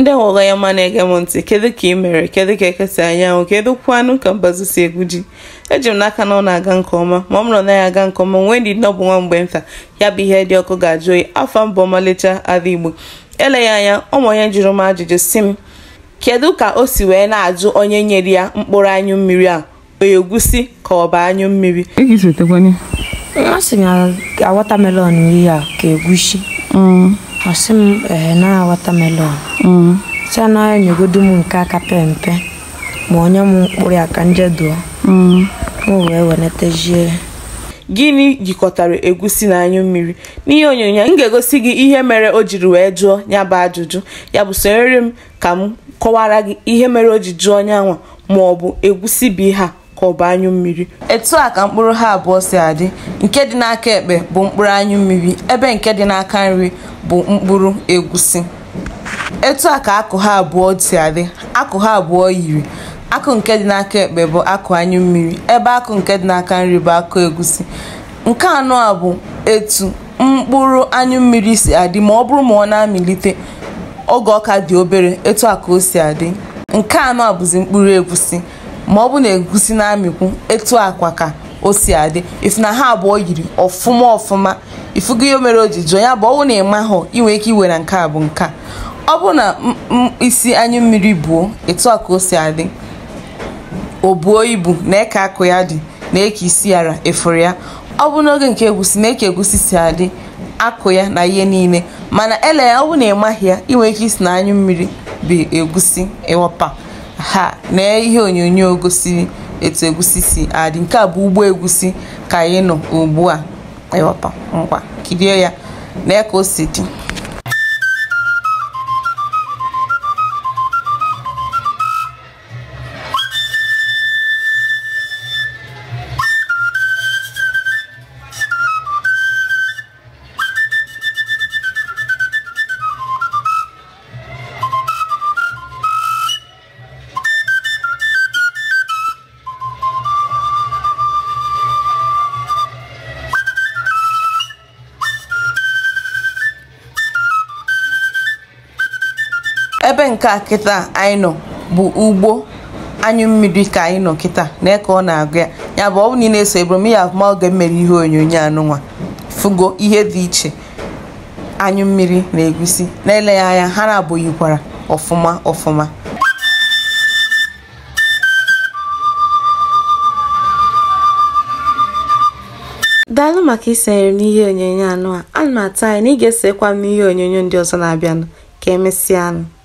ndị hụla ya ma na-ege m ntị kedu ka ị mere kedu ka ekesa anyanwụ kedu kwanụ ka mbazụ si egwu ji eji m n'aka na ọ na-aga nke ọma ma ọ mụrụ na ya aga nke ọma nwee ndị ọ bụ nwa mgbe nta ya bụ ihe dị ọkụ ga-ajụ oyi afọ mbụ ọmalịcha ala igbo eleghị anya ụmụ onye jụrụ m ajụjụ si m kedu ka o si wee na-ajụ onye nyere ya mkpụrụ anyụ mmiri a egwusi ka ọ bụ anyụ mmiri watamelon ihe a ka egwusi mm. m na watamelon Mm. na anaghị enyegodu m nke aka pempe ma onye m mkpụrụ ya ka njeduo m mm. wee wenatazie ya gịnị jikọtara egusi na anyụ mmiri n'ihe onyonyo m ga-egosi gị ihe mere o jiri wee jụọ ya bụ ajụjụ ya bụ sonyere m ka m kọwara gị ihe mere o ji jụọ onye ma ọ bụ egusi bụ ihe a ka ọ bụ anyụ mmiri etu a ka mkpụrụ ha abụọ si adị nke dị n'aka ekpe bụ mkpụrụ anyụ mmiri ebe nke dị n'aka nri bụ mkpụrụ egusi etu a ka akụ ha abụọ si adị akụ ha abụọ yiri akụ nke dị n'aka ekpe bụ akụ anyụ mmiri ebe akụ nke dị n'aka nri bụ akụ egusi nke anọ a bụ etu mkpụrụ anyụ mmiri si adị ma ọ bụrụ ma ọ na-amịlite oge ọka dị obere etu a ka o si adị nke anọ a bụzi mkpụrụ egusi ma ọ bụ na egusi na-amịkwu etu akwa ka o si adị ifu na ha abụọ yiri ọfụma ọfụma ifugo ihe mere o ji jụọ ya bụ ọwụ na ịma hụ inwe ike iwe na nke a bụ nke a ọ bụrụ na isi anyụ mmiri buo etu a ka o si adị o buo ibu na eke akụ ya dị na eke isi yara efuru ya ọ bụ n'oge nke egusi na eke egusi si adị akụ ya na ihe niile mana ele ya ọ bụ na ịmaghị ya inwe ike isi na anyụ mmiri bụ egusi ịwapa ha na ihe onyonyo gosiri etu egusi si adị nke a bụ ugbo egusi ka anyị nọ ugbu a ịwọpa ngwa kirie ya na eke o si dị ebe nke kịta anyị nọ bụ ugbo anyụ mmiri ka anyị nọ kịta na ka ọ na-agụ ya ya bụ ọ bụ na ị na-eso ebrom ya afụma oge mmere ihe onyonyo anụnwa fugo ihe dị iche anyụ mmiri na egusi na-eleghị anya ha na-abụghịkwara ọfụma ọfụma daalụ maka isonyere m n'ihe onyonyo anụ a ana m atụ anya na ị ga-esekwa m n'ihe onyonyo ndị ọzọ na-abịanụ ka emesịa anụ